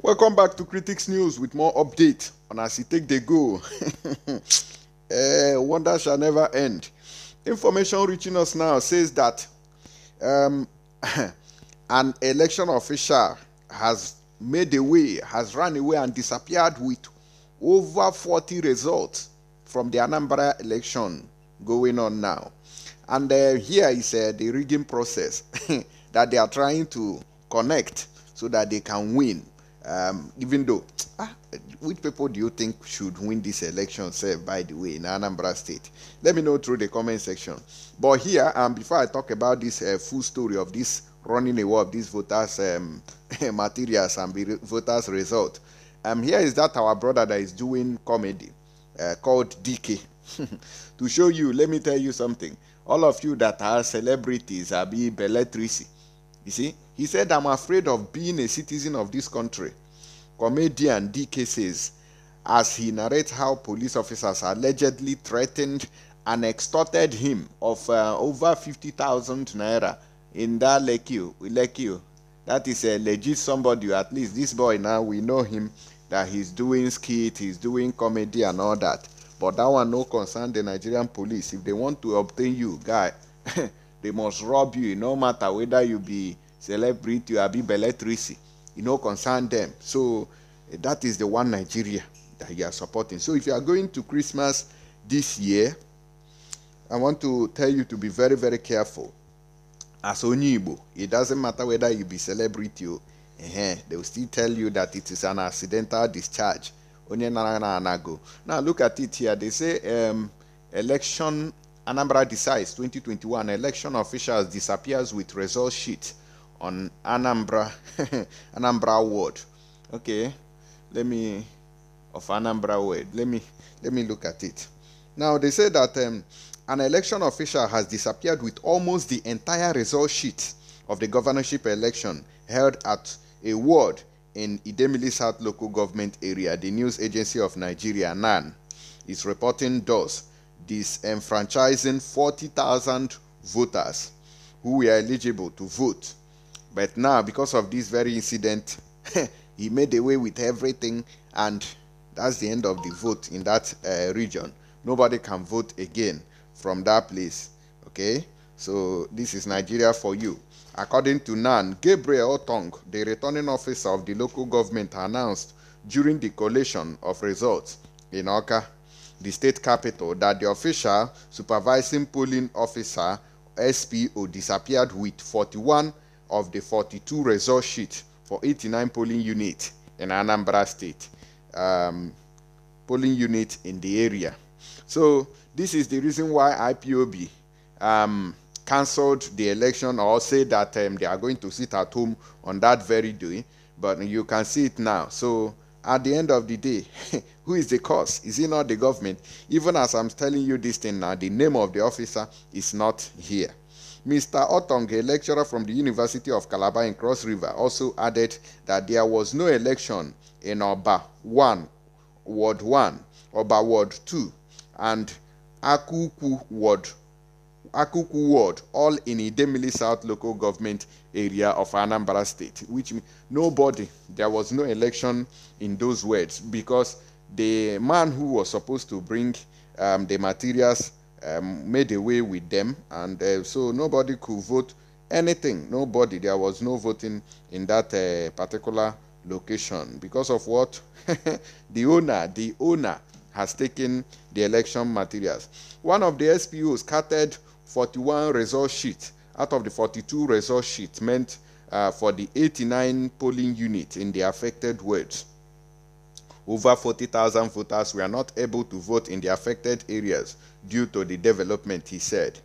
Welcome back to Critics News with more update on as you take the go. uh, wonder shall never end. Information reaching us now says that um, an election official has made away, has run away and disappeared with over 40 results from the Anambra election going on now. And uh, here is uh, the rigging process that they are trying to connect so that they can win um, even though ah, which people do you think should win this election say by the way in anambra state let me know through the comment section but here um, before i talk about this uh, full story of this running away of these voters um, materials and re- voters result um, here is that our brother that is doing comedy uh, called dk to show you let me tell you something all of you that are celebrities are being belletrici you see, he said, I'm afraid of being a citizen of this country. Comedian DK says, as he narrates how police officers allegedly threatened and extorted him of uh, over 50,000 naira in that lake you, That is a legit somebody, at least this boy now, we know him that he's doing skit, he's doing comedy and all that. But that one no concern the Nigerian police. If they want to obtain you, guy, they must rob you no matter whether you be celebrity or be belletrisi e no concern them so eh, that is the one nigeria that you are supporting so if you are going to christmas this year i want to tell you to be very very careful as onyibo it doesn't matter whether you be celebrity o uh-huh, they will still tell you that it is an accidental discharge onye nara na anago now look at it here they say um, election Anambra decides 2021 election officials disappears with result sheet on Anambra Anambra ward. Okay, let me of Anambra ward. Let me let me look at it. Now they say that um, an election official has disappeared with almost the entire result sheet of the governorship election held at a ward in Idemili South local government area. The news agency of Nigeria NAN is reporting those disenfranchising 40,000 voters who were eligible to vote. But now, because of this very incident, he made away with everything, and that's the end of the vote in that uh, region. Nobody can vote again from that place. Okay, so this is Nigeria for you. According to NAN, Gabriel Otong, the returning officer of the local government, announced during the collation of results in Oka the state capital that the official supervising polling officer SPO disappeared with 41 of the 42 result sheets for 89 polling units in Anambra State, um, polling units in the area. So this is the reason why IPOB um, cancelled the election or say that um, they are going to sit at home on that very day. But you can see it now. So at the end of the day, who is the cause? Is it not the government? Even as I'm telling you this thing now, the name of the officer is not here. Mr. Otong, a lecturer from the University of Calabar in Cross River, also added that there was no election in Oba 1, Ward 1, Oba Ward 2, and Akuku Ward Akuku Ward, all in Idemili South local government area of Anambra State, which nobody, there was no election in those words because the man who was supposed to bring um, the materials um, made away with them, and uh, so nobody could vote anything. Nobody, there was no voting in that uh, particular location because of what the owner, the owner has taken the election materials. One of the SPOs scattered 41 result sheet out of the 42 result sheet meant uh, for the 89 polling unit in the affected wards. Over 40,000 voters were not able to vote in the affected areas due to the development, he said.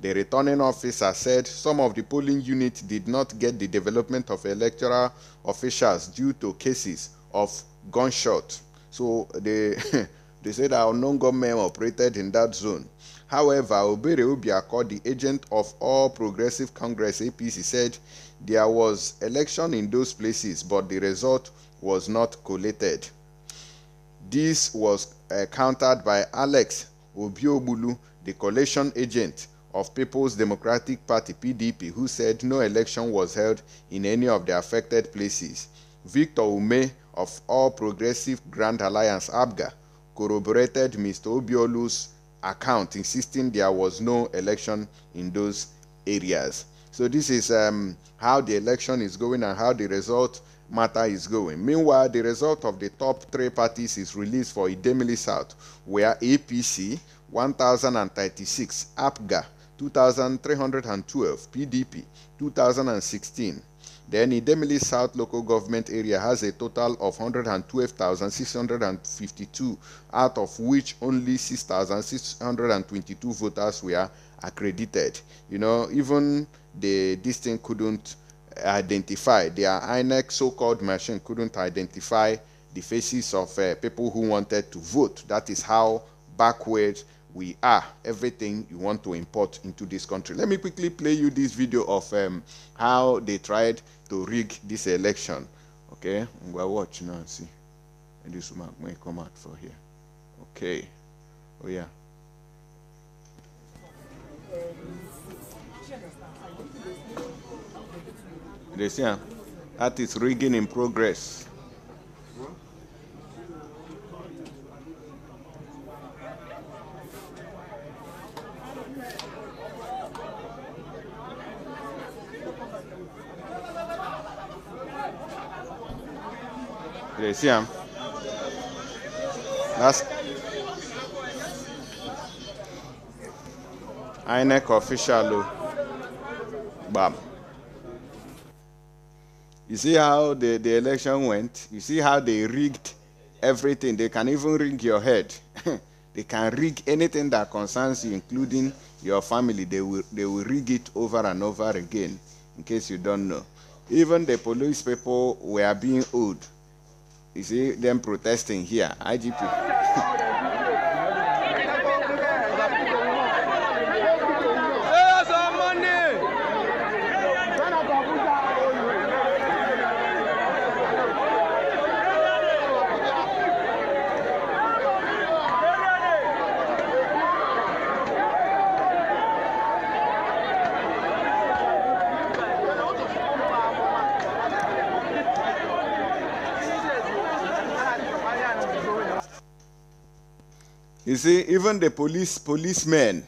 The returning officer said some of the polling units did not get the development of electoral officials due to cases of gunshot. So they, they said our non government operated in that zone However, Obere Ubiako, the agent of All Progressive Congress APC, said there was election in those places, but the result was not collated. This was uh, countered by Alex Obiobulu, the collation agent of People's Democratic Party PDP, who said no election was held in any of the affected places. Victor Ume of All Progressive Grand Alliance ABGA corroborated Mr. Obiolu's account, insisting there was no election in those areas. So this is um, how the election is going and how the result matter is going. Meanwhile, the result of the top three parties is released for Idemili South, where APC 1036, APGA 2312, PDP 2016. Then Idemili South local government area has a total of 112,652, out of which only 6,622 voters were accredited. You know, even the this couldn't identify their INEC so-called machine couldn't identify the faces of uh, people who wanted to vote. That is how backwards we are, everything you want to import into this country. Let me quickly play you this video of um, how they tried to rig this election. Okay, we're watching now and see. And this woman may come out for here. Okay, oh yeah. This say ah, that is rigging in progress. What? you see him? That's INEC official. Oh. Bam. You see how the, the election went? You see how they rigged everything? They can even rig your head. they can rig anything that concerns you, including your family. They will, they will rig it over and over again, in case you don't know. Even the police people were being owed you see them protesting here, IGP. You see, even the police policemen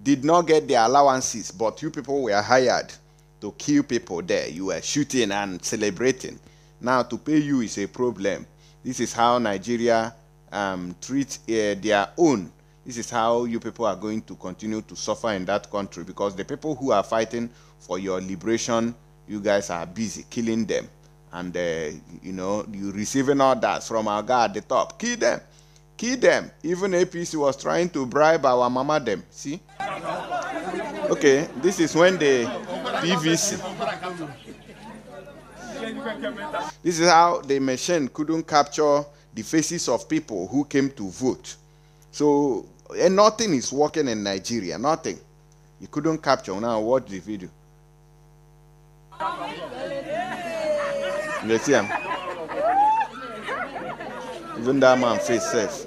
did not get their allowances, but you people were hired to kill people there. You were shooting and celebrating. Now to pay you is a problem. This is how Nigeria um, treats uh, eh, their own. This is how you people are going to continue to suffer in that country because the people who are fighting for your liberation, you guys are busy killing them. And, uh, you know, you receiving orders from our guy at the top. Kill them. Kill them. Even APC was trying to bribe our mama them. See? Okay, this is when the PVC. This is how the machine couldn't capture the faces of people who came to vote. So and eh, nothing is working in Nigeria. Nothing. You couldn't capture. Now watch the video. You see him? Even that man face safe.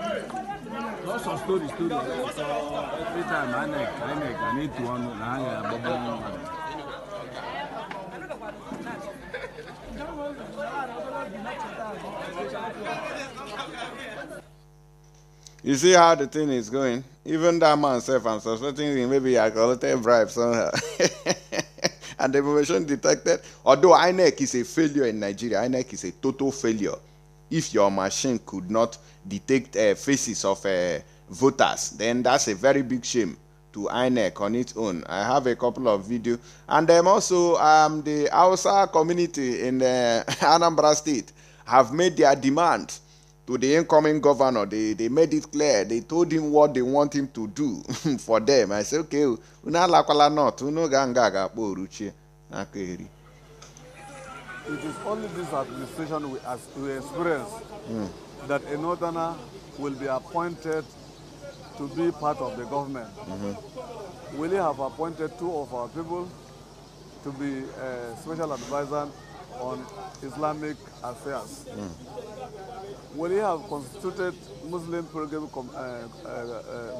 Lots of every time I I I need to one, a You see how the thing is going? Even that man self, I'm suspecting him, maybe I little bribe somehow. and the information detected, although INEC is a failure in Nigeria, INEC is a total failure if your machine could not detect uh, faces of uh, voters then that's a very big shame to INEC on its own. I have a couple of videos, and um, also um, the Hausa community in uh, Anambra State have made their demand to the incoming governor. They they made it clear. They told him what they want him to do for them. I said, okay, oh, unalakwala not, unoganga ga poruchi, akeri it is only this administration we, as, we experience mm. that a northerner will be appointed to be part of the government. Mm -hmm. We have appointed two of our people to be a special advisor on Islamic affairs. Mm. We have constituted Muslim pilgrim uh,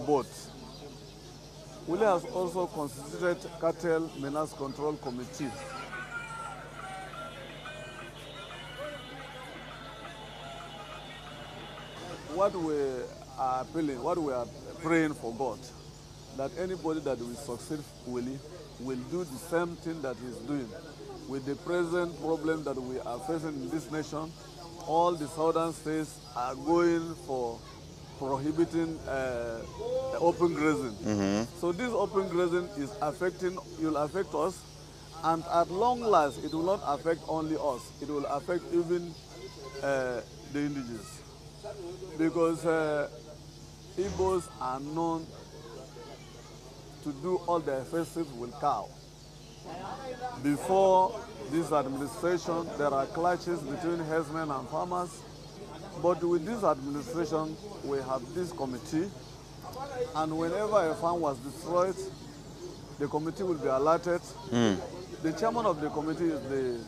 uh, uh, also constituted cartel menace control committee. what we are appealing, what we are praying for God, that anybody that will succeed fully will do the same thing that he's doing. With the present problem that we are facing in this nation, all the southern states are going for prohibiting uh, open grazing. Mm -hmm. So this open grazing is affecting, will affect us, and at long last, it will not affect only us. It will affect even uh, the indigenous because uh, Igbos are known to do all their festive with cow. Before this administration, there are clashes between herdsmen and farmers. But with this administration, we have this committee. And whenever a farm was destroyed, the committee will be alerted. Mm. The chairman of the committee is the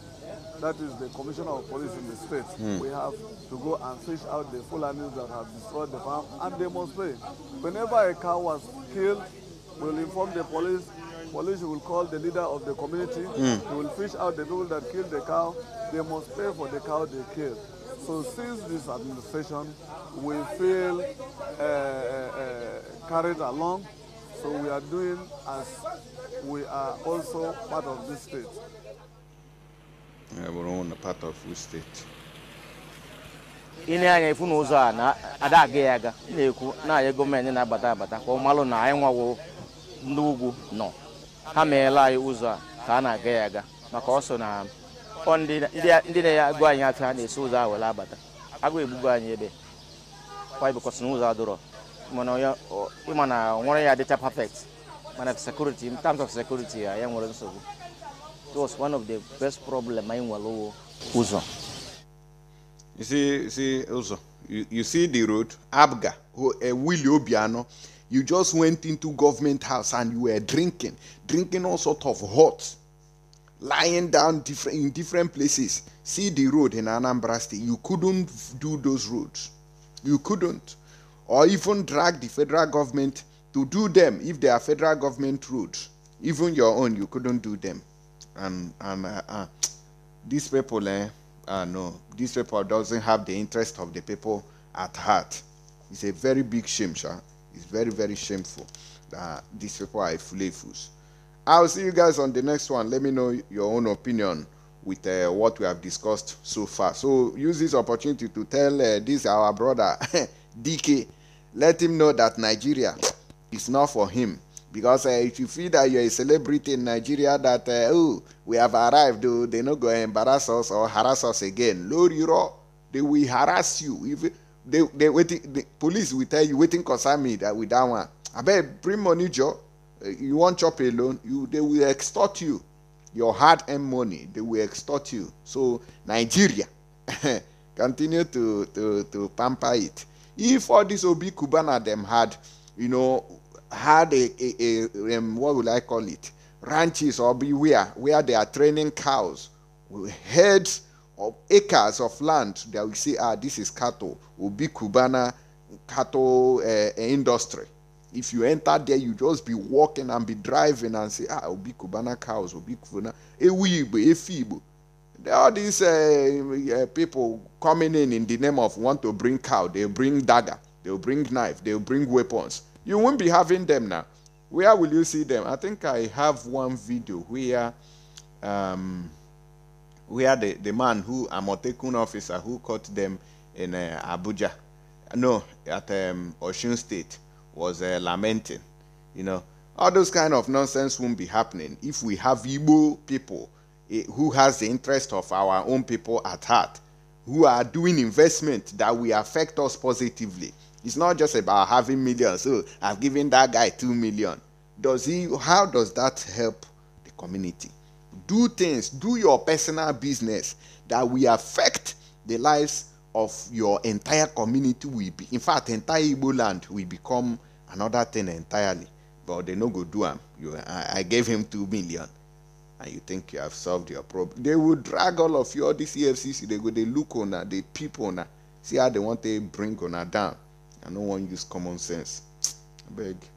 that is the commissioner of police in the state, mm. we have to go and fish out the Fulanis that have destroyed the farm and demonstrate. Whenever a cow was killed, we'll inform the police. Police will call the leader of the community. Mm. They will fish out the people that killed the cow. They must pay for the cow they killed. So since this administration, we feel uh, uh, uh carried along. So we are doing as we are also part of this state. bụrụ na part of steeti ị anya ifu na ụzọ a na-ada aga ya aga na-ekwu na-anya gọọmenti na-abata abata ka ọ malụ na anyị nwawo ndị ugwu nọ ha meela anyị ụzọ a ka a na-aga ya aga maka ọ so na ndị na-agụ anyị atụ ha na-esi ụzọ a were abata agụ egbugo anyị ebe kwa ịbụkọsị na ụzọ adụrọ ịma na ọ nwere ya dịcha perfect mana sekuriti in of sekuriti ya ya nwere nsogbu It was one of the best problems in Wallowo. Uzo. You see, see Uzo, you, you see the road, Abga, who, uh, Willie Obiano, you just went into government house and you were drinking, drinking all sort of hot, lying down different, in different places. See the road in Anambra State. You couldn't do those roads. You couldn't. Or even drag the federal government to do them if they are federal government roads. Even your own, you couldn't do them and and uh, uh, these people, eh, uh, no, these people doesn't have the interest of the people at heart. It's a very big shame, sir. It's very very shameful that these people are flavors. I'll see you guys on the next one. Let me know your own opinion with uh, what we have discussed so far. So use this opportunity to tell uh, this our brother DK, let him know that Nigeria is not for him because uh, if you feel that you're a celebrity in nigeria that uh, oh we have arrived oh, they not go embarrass us or harass us again you know, they will harass you if they they waiting the police will tell you waiting concern me that with that one bet bring money jo eh, you want chop alone you they will extort you your hard earned money they will extort you so nigeria continue to to to pamper it if all this obi Kubana them had you know had a, a, a um, what will I call it? Ranches or beware where they are training cows with heads of acres of land that we say, ah, this is cattle, will be Cubana cattle uh, industry. If you enter there, you just be walking and be driving and say, ah, will be Cubana cows, will be Cubana, Ewibo, There are these uh, uh, people coming in in the name of want to bring cow, they bring dagger, they bring knife, they bring weapons you won't be having them now. Where will you see them? I think I have one video where um, where the, the man who Amotekun officer who caught them in uh, Abuja, no, at um, Osun State, was uh, lamenting. You know, all those kind of nonsense won't be happening if we have Igbo people eh, who has the interest of our own people at heart, who are doing investment that will affect us positively. It's not just about having millions. So I've given that guy two million. Does he? How does that help the community? Do things. Do your personal business that will affect the lives of your entire community. Will be in fact entire Igbo land will become another thing entirely. But they no go do him. You, I, I gave him two million and you think you have solved your problem. They will drag all of you, all this they go, they look on they peep on see how they want to bring on her down and no one use common sense. I beg.